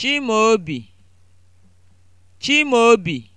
Chimaobi Chimaobi